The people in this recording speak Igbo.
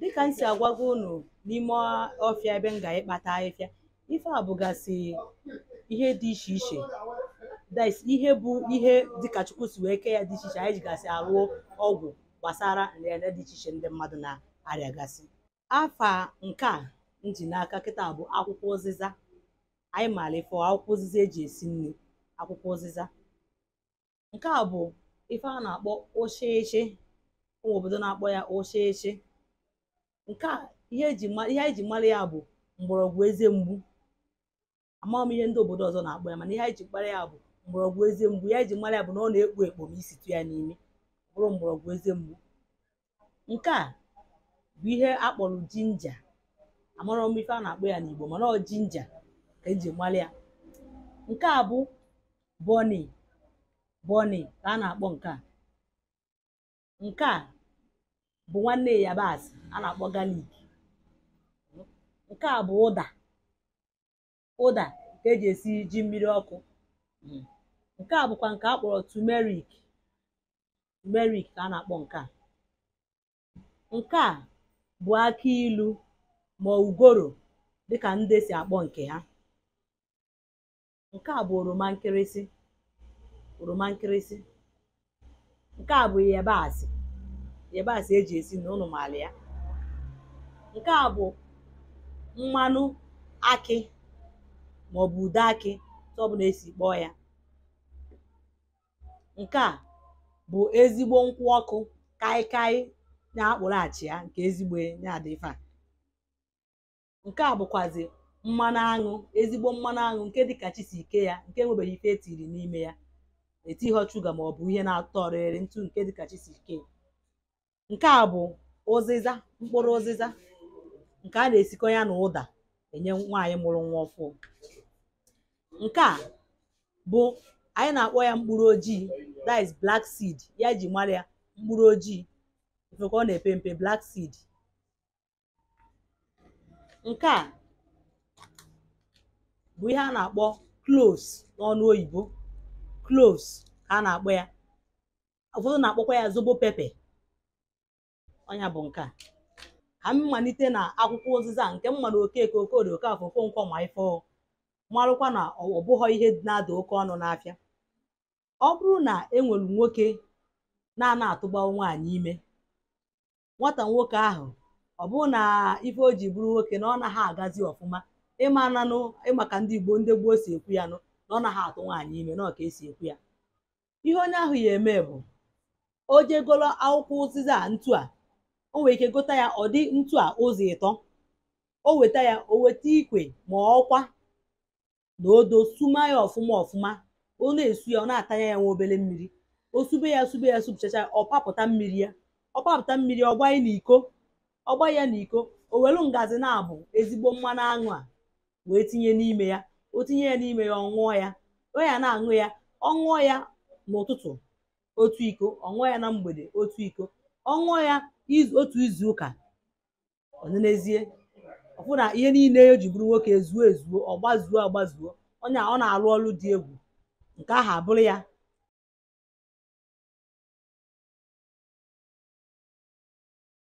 dịka m si agwago unu n'ime ọfịa ebe m ga-ekpata ahịhịa ife a bụgasị ihe dị iche iche ihe bụ ihe dịka chukwu si wee kee ya dị iche iche anyị jigasị arụ ọgwụ gbasara nrịanrịa dị iche iche ndị mmadụ na-arịagasị afa nke a nji n'aka kịta bụ akwụkwọ ụzịza anyị maara ife akwụkwọ ụzịza eji esi nri akwụkwọ ụzịza nke a bụ ife a na-akpọ ụshịchị ụmụ obodo na-akpọ ya ụshịchị nke a ihe anyị ji mara ya bụ mgbọrọgwụ eze mgbu amaghị m ihe ndị obodo ọzọ na-akpọ ya mana ihe anyị ji mara ya bụ mgbọrọgwụ eze mgbu ya ji mara ya bụ na ọ na-ekpo ekpo ma ya n'ime bụrụ mgbọrọgwụ eze mgbu nke a bụ ihe a kpọrọ jinja amarọ m ife a na-akpọ ya n'Igbo mana ọ jinja ka eji mara ya nke a bụ bọni bọni ka a na-akpọ nke a nke a bụ nwanne yabasị a na-akpọ galik nke a bụ ụda ụda nke eji esi ji mmiri ọkụ nke a bụkwa nke a kpọrọ tumerik tumerik ka a na-akpọ nke a nke a bụ aki ilu ma ugoro dịka ndị si akpọ nke ha nke a bụ oroma nkịrịsị oroma nkịrịsị nke a bụ yabasị yabasị eji esi na ụnụ maala ya nke a bụ mmanụ akị maọbụ ude akị tụ ọbụla esi kpọọ ya nke a bụ ezigbo nkwụ ọkụ kaikai na-akpụrụ achị ya nke ezigbo na-adịfa nke a bụkwazi mmanụ aṅụ ezigbo mmanụ aṅụ nke dịka chisi ike ya nke enwebeghị ife e tiri n'ime ya etighọ shuga maọbụ ihe na-atọ ọrịrị ntụ nke dịka chisi ike ya Nke a bụ ụzịza mkpụrụ ụzịza nke a na-esikọ ya na ụda enye nwaanyị mụrụ nwa ọfụụ. Nke a bụ anyị na-akpọ ya mkpụrụ ojii that is black seed ya ji jì ya mkpụrụ ojii nke ka ọ na-epe mpe black seed. Nke a bụ ihe a na-akpọ cloves n'ọnụ oyibo, ka a na-akpọ ya ụfọdụ na-akpọkwa ya zobo pepe. Onya bụ nke a ka m malite na akwụkwọ ụzịza nke m mara okeke okorie okafọ okonkwo ma ife marụkwa na ọ bụghọ ihe na-ada oke ọnụ n'afịa ọ bụrụ na e nwere nwoke na-ana atụgbawa nwaanyị ime nwata nwoke ahụ ọ bụrụ na ife o ji bụrụ nwoke na ọ naghị agazi ọfụma ịma nanụ ịmaka ndị Igbo ndị gboo si ekwu ya nụ na ọ naghị atụ nwaanyị ime na ọ ka esi ekwu ya ihe onye ahụ ya eme bụ o jegolo akwụkwọ ụzịza ntu a o nwere ike gota ya ọ dị ntu a ụzọ ịtọ o weta ya o weta ikwe ma ọkwa na odo suma ya ọfụma ọfụma ọ na-esu ya ọ na-atanya ya nwa obere mmiri o sube ya sube ya supụchacha ọ papụta mmiri ya ọ papụta mmiri ọ gbanye n'iko ọ gbanye ya n'iko o welu ngazi na-abụ ezigbo mmanụ aṅụ a wee tinye n'ime ya o tinye ya n'ime ya ọ ya ọ ya na-aṅụ ya ọ ṅụọ ya n'ụtụtụ otu iko ọ ṅụọ ya na mgbede otu iko ọ ṅụọ ya otu izu ụka ọnenezie ọfụ na ihe niile e ji bụrụ nwoke ezuo ezuo ọgbazuo agbazuo onye ọ na alụ ọrụ dị egwu nke ahụ abụrụ ya